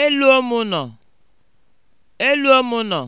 Elu ụmụ nọ, nọ.